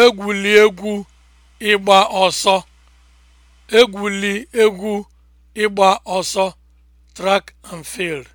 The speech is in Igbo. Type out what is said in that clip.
Egwuli egwu ịgba ọsọ, (track and field)